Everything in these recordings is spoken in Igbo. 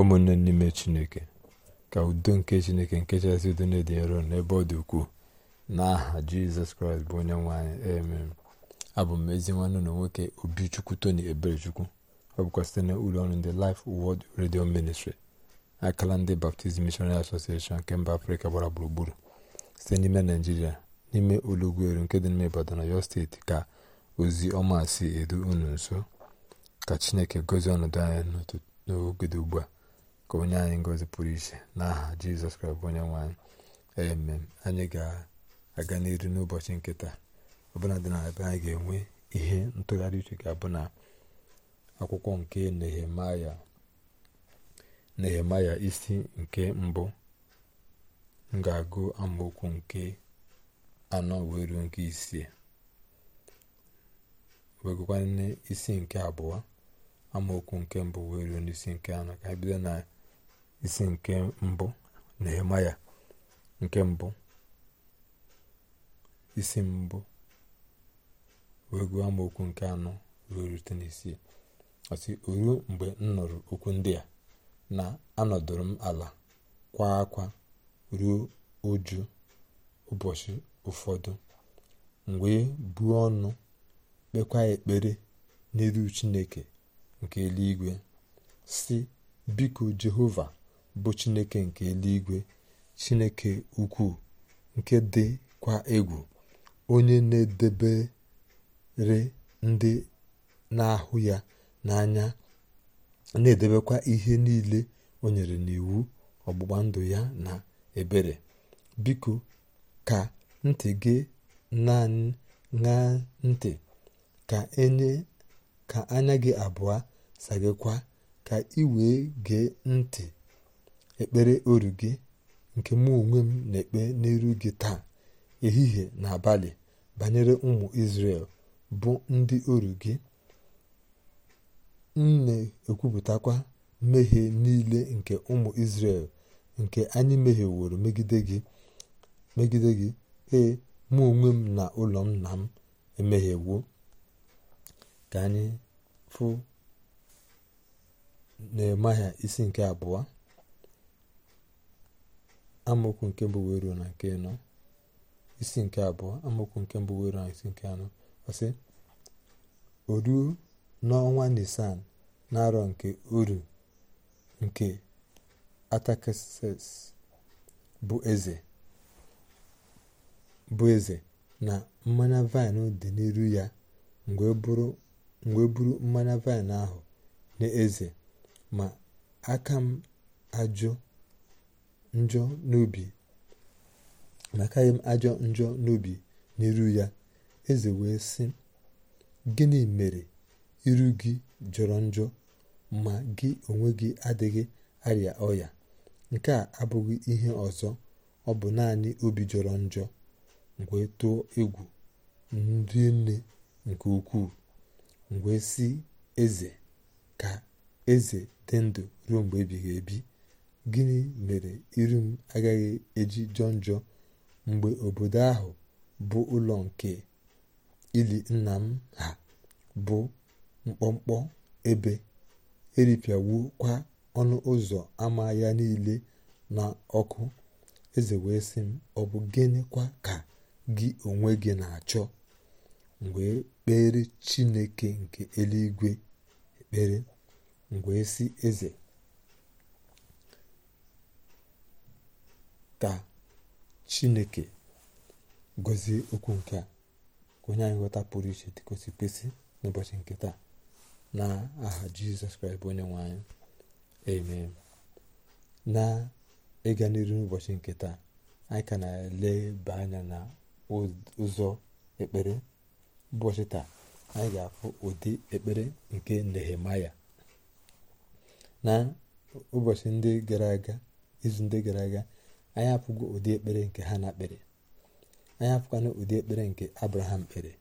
ụmụnne n'ime chineke ka udo nke chineke nke chasị udo na-edị nro n'ebe ọ dị ukwuu n'aha jizọs kraịst bụ onye nwanyị anyị amen abụ m ezi nwanne na nwoke obichukwu tony eberechukwu ọ bụkwa site na ụlọ ọrụ ndị Life Word redio ministri akala ndị baptizim Missionary Association nke mba afrịka gbara gburugburu site n'ime naijiria n'ime olugweru nke dị n'ime ibadan ọyọ steeti ka ozi ọma si edu unu nso ka chineke gozie ọnọdụ anya n'oge ugbu a ka onye anyị ngozi pụrụ iche n'aha jizọs kraịst onye nwanyị anyị anyị ga-aga n'iru n'ụbọchị nkịta ọbụla dị na ebe anyị ga-enwe ihe ntụgharị uche ga-abụ na akwụkwọ nke nehemaya nehemaya isi nke mbụ m ga-agụ amaokwu nke anọ wee ruo nke isii isi nke abụọ amaokwu nke mbụ wee ruo n'isi nke anọ isi nke mbụ na-ema ya nke mbụ isi mbụ wee gụọ okwu nke anọ ruo rute n'isii ọsị ruo mgbe m nụrụ okwu ndị a na anọdụrụ m ala kwa akwa ruo uju ụbọchị ụfọdụ mgbe e buo ọnụ kpekwa ekpere n'elu chineke nke eluigwe si biko jehova bụ chineke nke eluigwe chineke ukwu nke dịkwa egwu onye na-edebere ndị na-ahụ ya n'anya na-edebekwa ihe niile o nyere n'iwu ọgbụgba ndụ ya na ebere biko ka ntị gị na ntị ka anya gị abụọ sagịkwa ka ị wee gee ntị ekpere oru gị nke mụ onwe m na-ekpe n'iru gị taa ehihie na abalị banyere ụmụ Izrel bụ ndị oru gị m na-ekwupụtakwa mmehie niile nke ụmụ Izrel nke anyị mehieworo megide gị megide gị ee mụ onwe m na ụlọ nna m emehiewo ka anyị fụ Nehemaya isi nke abụọ amaokwu nke mbụ wee ruo na nke nọ isi nke abụọ amaokwu nke mbụ wee na isi nke anọ ọsị oruo n'ọnwa nisan na-arọ nke uru nke atakses bụ eze na mmanya vaịn dị n'iru ya mgbe e e buru mmanya vaịn ahụ n'eze ma aka m ajụ njọ n'obi makaghị m ajọ njọ n'obi n'iru ya eze wee sị gịnị mere iru gị jọrọ njọ ma gị onwe gị adịghị arịa ọya nke a abụghị ihe ọzọ ọ bụ naanị obi jọrọ njọ mgbe tụọ egwu ndị nne nke ukwuu mgbe sị eze ka eze dị ndụ ruo mgbe ebighị ebi gịnị mere iru m agaghị eji jọ njọ mgbe obodo ahụ bụ ụlọ nke ili nna m ha bụ mkpọmkpọ ebe e kwa ọnụ ụzọ ama ya niile na ọkụ eze wee sị m ọ bụ gịnịkwa ka gị onwe gị na-achọ mgbe kpere chineke nke eluigwe ekpere mgbe si eze ka chineke gozie okwu nke a onye anyị ghọta pụrụ iche dị kwesị kwesị n'ụbọchị nke taa na aha jizọs kraịst bụ onye nwanyị eme amen na ịga n'iru n'ụbọchị nke taa anyị ka na-eleba anya na ụzọ ekpere ụbọchị taa anyị ga-afụ ụdị ekpere nke nehemaya na ụbọchị ndị gara ndị gara aga anyị apụgo ụdị ekpere nke hana kpere anyị apụkwana ụdị ekpere nke abraham kpere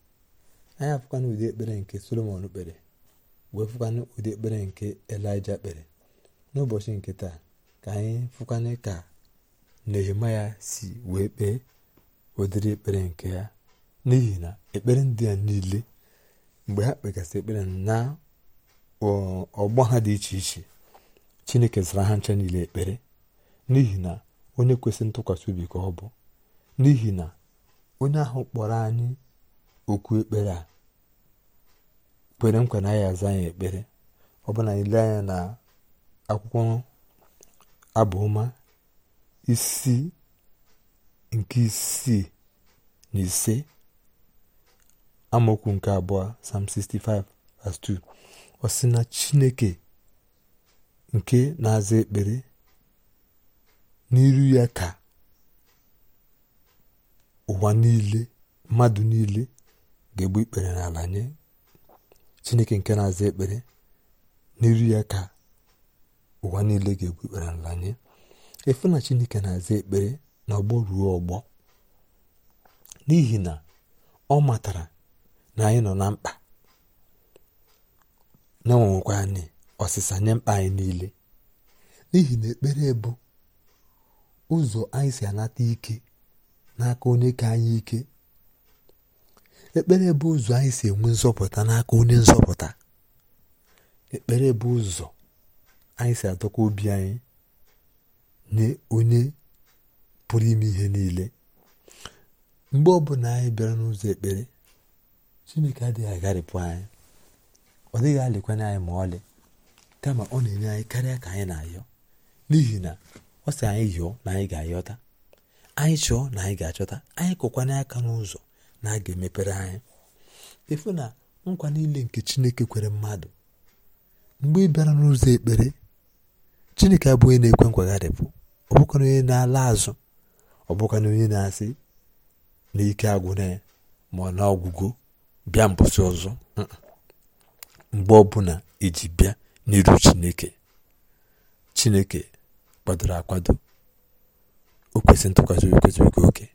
anyị apụkwana ụdị ekpere nke solomon kpere wee fụkwana ụdị ekpere nke elija kpere n'ụbọchị nke taa ka anyị fụkwana ka nehemaya si wee kpee ụdịrị ekpere nke ya n'ihi na ekpere ndị a niile mgbe ha kpegasị ekpere na ọgbọ ha dị iche iche chineke zara ha ncha niile ekpere n'ihi na onye kwesị ntụkwasị obi ka ọ bụ n'ihi na onye ahụ kpọrọ anyị okwu ekpere a kwere nkwa na ya aza anyị ekpere ọ bụ na anyị anya na akwụkwọ abụọma isi nke isii na ise amaokwu nke abụọ Psalm 2 ọ sị na Chineke nke na-aza ekpere n'iru ya ka ụwa niile mmadụ niile ga-egbu ikpere n'ala nye chineke nke na-aza ekpere n'iru ya ka ụwa niile ga-egbu ikpere n'ala nye efu na chineke na-aza ekpere na ọgbọ ruo ọgbọ n'ihi na ọ matara na anyị nọ na mkpa na anyị ọsịsa nye mkpa anyị niile n'ihi na ekpere bụ ụzọ anyị si anata ike n'aka onye ka anyị ike ekpere bụ ụzọ anyị si enwe nzọpụta n'aka onye nzọpụta ekpere bụ ụzọ anyị si adọkwa obi anyị nye onye pụrụ ime ihe niile mgbe ọbụla anyị bịara n'ụzọ ekpere chineke adịghị agharịpụ anyị ọ dịghị alịkwanye anyị ma ọlị kama ọ na-enye anyị karịa ka anyị na-ayọ n'ihi na ọ sị anyị yọọ na anyị ga-ayọta anyị chọọ na anyị ga-achọta anyị kụkwana aka n'ụzọ na a ga-emepere anyị efu na nkwa niile nke chineke kwere mmadụ mgbe ị bịara n'ụzọ ekpere chineke abụ onye na-ekwe nkwagharịpụ ọ bụkwa onye na-ala azụ ọ bụkwa onye na-asị na ike agwụna ya ma ọ na ọgwụgwụ bịa mbọsị ọzọ mgbe ọbụla iji bịa n'iru chineke chineke kwadoro akwado o kwesịrị ntụkwasị obi kwesịrị oke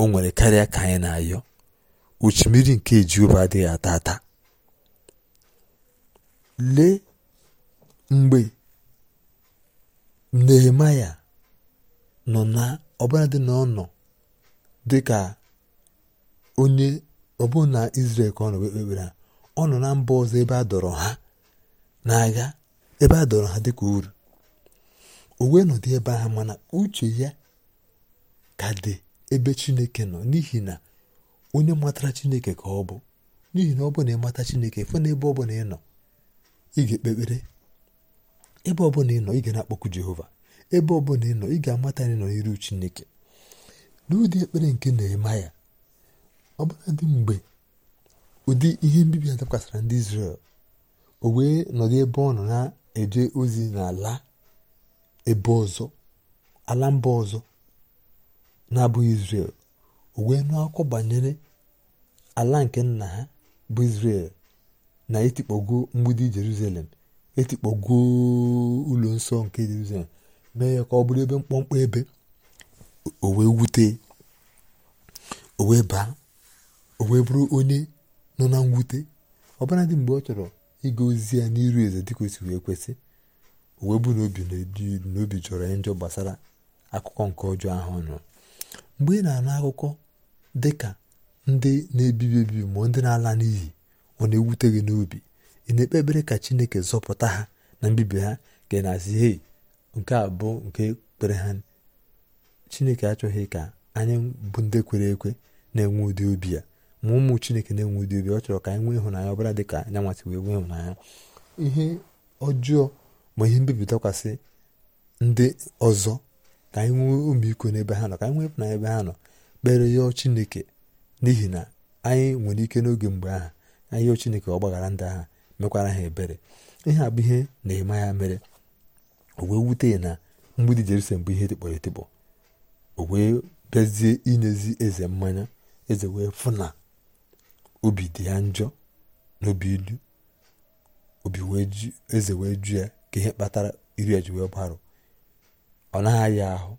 o nwere karịa ka anyị na-ayọ uchu mmiri nke Jehova adịghị ata ata lee mgbe Nehemaya nọ na ọbụladị na ọ dị ka onye ọ na Izrel ka ọ nọ ekpekpere ọ nọ na mba ọzọ ebe a dọrọ ha n'agha ebe a dọrọ ha dịka uru owe wee ebe ahụ mana uche ya ka dị ebe chineke nọ n'ihi na onye matara chineke ka ọ bụ n'ihi na ọ bụ na ịmata chineke fụ na ebe ọbụla ị nọ ị ga-ekpe ebe ọbụla ị nọ ị ga na-akpọku jehova ebe ọbụla ị nọ ị ga-amata na ị nọ n'iru chineke n'ụdị ekpere nke na-eme ya dị mgbe ụdị ihe mbibi a dakwasara ndị Izrel o wee nọdụ ebe ọ nọ na-eje ozi n'ala ebe ọzọ ala mba ọzọ na-abụghị Israel o wee nụ akụkọ banyere ala nke nna ha bụ Israel na etikpọgo mgbidi Jerusalem etikpọgo ụlọ nsọ nke Jerusalem mee ya ka ọ bụrụ ebe mkpọmkpọ ebe o wute o baa o bụrụ onye nọ na mwute dị mgbe ọ chọrọ ịga ozi ya n'iru eze dịka o si wee kwesị uwe buru obi na obi jọrọ njọ gbasara akụkọ nke ọjọọ ahụ nụ mgbe ị na-anụ akụkọ dị ka ndị na-ebibi ebibi ma ndị na-ala n'iyi ọ na-ewute gị n'obi ị na-ekpe ekpere ka chineke zọpụta ha na mbibi ha ka ị na-asị hei nke a bụ nke kpere ha chineke achọghị ka anyị bụ ndị kwere ekwe na-enwe ụdị obi ya ma ụmụ chineke na-enwe ụdị obi ọ chọrọ ka anyị nwee ịhụnanya ọbara dị ka anyanwasị wee nwee ịhụnanya ihe ọjọọ ma ihe mbibi dakwasị ndị ọzọ ka anyị nwee omiiko n'ebe ha nọ ka anyị nwee na ebe ha nọ kpere yọọ chineke n'ihi na anyị nwere ike n'oge mgbe aha anyị yọọ chineke gbaghara ndị agha mekwara ha ebere ihe a bụ ihe na-eme ya mere o wee wute ya na mgbidi jerusalem bụ ihe dịkpọrọ etikpọ o wee bịazie inyezi eze mmanya eze wee fụ na obi dị ya njọ n'obi ilu obi wee eze wee ju ya ka ihe kpatara iri eji wee gbarụ ọ naghị ya ahụ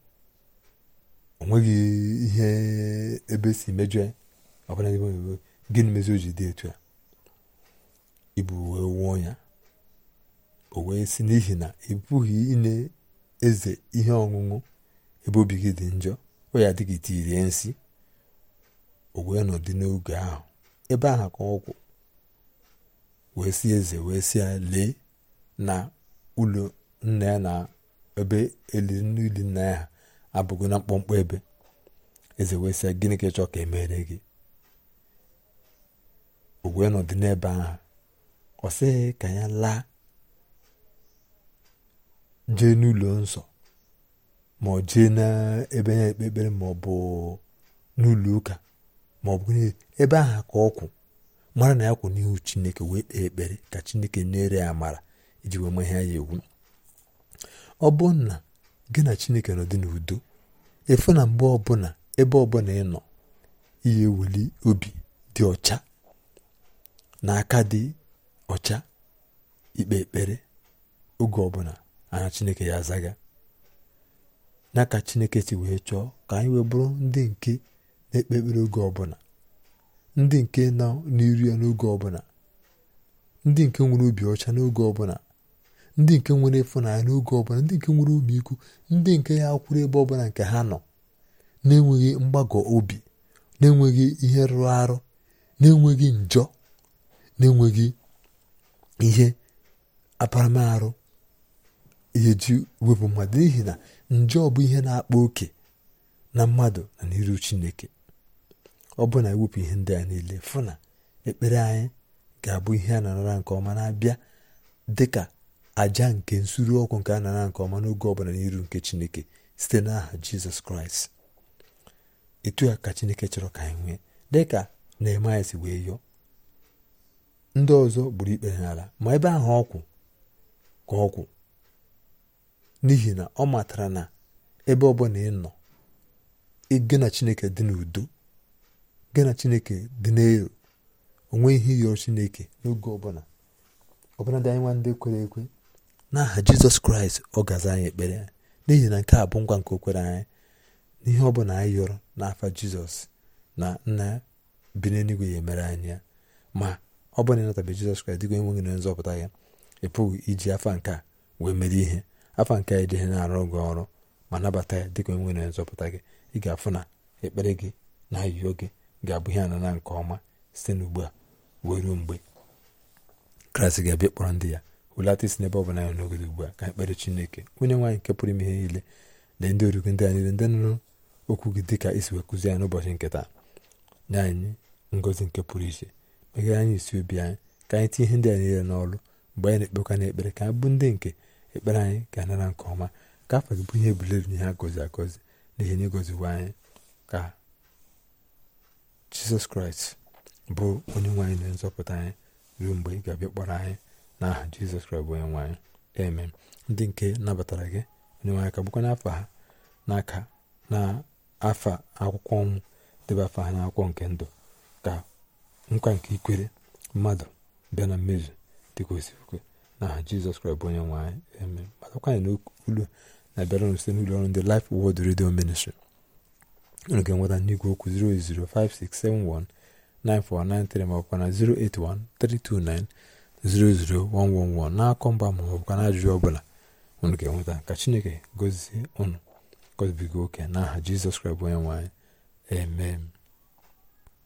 o nweghị ihe ebe si mejọ ya ọbụla ebe gịnị mezi o ji dị etu ya ibu wee wụọ ya o wee si n'ihi na ị pụghị ịna eze ihe ọṅụṅụ ebe obi gị dị njọ o ya adịghị tirie nsị o wee nọdụ n'oge ahụ ebe ahụ ka ọgwụ wee si eze wee si ya lee na ụlọ nna ya na ebe eliri n'ili nna ya ha abụghị na mkpọmkpọ ebe eze wee sị gịnị ka ịchọ ka emere gị o wee nọdụ n'ebe ahụ ọ sịghị ka ya laa jee n'ụlọ nsọ ma ọ jee n'ebe na-ekpe ekpere ma ọ bụ n'ụlọ ụka ma ọ bụ ebe ahụ ka ọ kwụ mara na ya kwụ n'ihu chineke wee kpee ekpere ka chineke nyere ya amara iji wee mahịa ya iwu ọ na gị na chineke nọ dị n'udo efu na mgbe ọbụla ebe ọbụla ị nọ ihe ewuli obi dị ọcha na aka dị ọcha ikpe ekpere oge ọbụla anya chineke ya zaga na ka chineke si wee chọọ ka anyị wee ndị nke na-ekpe ekpere oge ọbụla ndị nke nọ n'iru ya n'oge ọbụla ndị nke nwere obi ọcha n'oge ọbụla ndị nke nwere ịfụnanya n'oge ọbụla ndị nke nwere ụmụikwu ndị nke ya kwụrụ ebe ọbụla nke ha nọ na-enweghị mgbagọ obi na-enweghị ihe rụrụ arụ na-enweghị njọ na-enweghị ihe aparamarụ ihe ji wepụ mmadụ n'ihi na njọ bụ ihe na-akpa oke na mmadụ na n'iru chineke ọ bụ na ewepụ ihe ndị a niile fụ na ekpere anyị ga-abụ ihe a na nke ọma na-abịa dịka àjà nke nsuru ọkụ nke a na nke ọma n'oge ọbụla n'iru nke chineke site n'aha jizọs kraịst etu a ka chineke chọrọ ka anyị nwee dịka Nehemaịa si wee yọọ ndị ọzọ gburu ikpe n'ala ma ebe ahụ ọkwụ ka ọkwụ n'ihi na ọ matara na ebe ọbụla ị nọ ịga na chineke dị n'udo gị na chineke dị n'elu onwe ihe yọrọ chineke n'oge ọbụla ọbụla dị anyị nwa ndị kwere ekwe n'aha jizọs kraịst ọ gaza anyị ekpere n'ihi na nke a bụ ngwa nke okwere anyị n'ihe ọ bụla anyị yọrọ n'afa jizọs na nna bi n'eluigwe ya emere anyị ya ma ọ bụrụ na ịnatabe jizọs kraịst dịka gị na nzọpụta ya ị pụghị iji afa nke wee mere ihe afa nke a na-arụ gị ọrụ ma nabata ya dịka enweghị na nzọpụta gị ị ga-afụ na ekpere gị na ayụyo gị ga-abụ ihe anana nke ọma site n'ugbu a wee ruo mgbe kraịst ga-abịa kpọrọ ndị ya hulata isi n'ebe ọ bụla anyị n'ogodo ugbu a ka anyị kpere chineke onye nwaanyị nke pụrụ ime ihe niile na ndị origo ndị niile ndị nụrụ okwu gị dị ka isi wee kụzie anyị n'ụbọchị nketa nye anyị ngozi nke pụrụ iche meghere anyị isi obi anyị ka anyị tinye ihe ndị a niile n'ọrụ mgbe anyị na-ekpekwa ekpere ka anyị bụ ndị nke ekpere anyị ga-anara nke ọma ka afọ gị bụ ihe na ihe agọzi agọzi n'ihi na ịgọziwo anyị ka jizọs kraịst bụ onye nwaanyị na nzọpụta anyị ruo mgbe ị ga-abịa kpọrọ anyị n'aha aha jizọs kraịst onye nwanyị eme ndị nke nabatara gị onye nwanyị ka n’afọ n'afa ha n'aka na afa akwụkwọ ọnwụ debe afa ha n'akwụkwọ nke ndụ ka nkwa nke ikwere mmadụ bịa na mmezu dịka osiokwe n'aha jizọs kraịst bụ onye nwanyị eme na ulu na-abịara site n'ụlọ ọrụ ndị Life Word redio Ministry unu ga-enweta n'igwe okwu ma ọ na 00111 n'akọ mba ma ọ bụkwa n'ajụjụ ọbụla unu ga-enweta ka chineke gọzie unu gọzibiga oke n'aha jizọs kraịst bụ onye nwe